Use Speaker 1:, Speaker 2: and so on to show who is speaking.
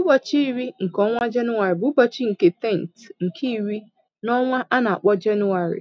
Speaker 1: Ụbọchị iri nke ọnwa Jenụwarị bụ ụbọchị nke tenth nke iri n'ọnwa a na-akpọ Jenụwarị.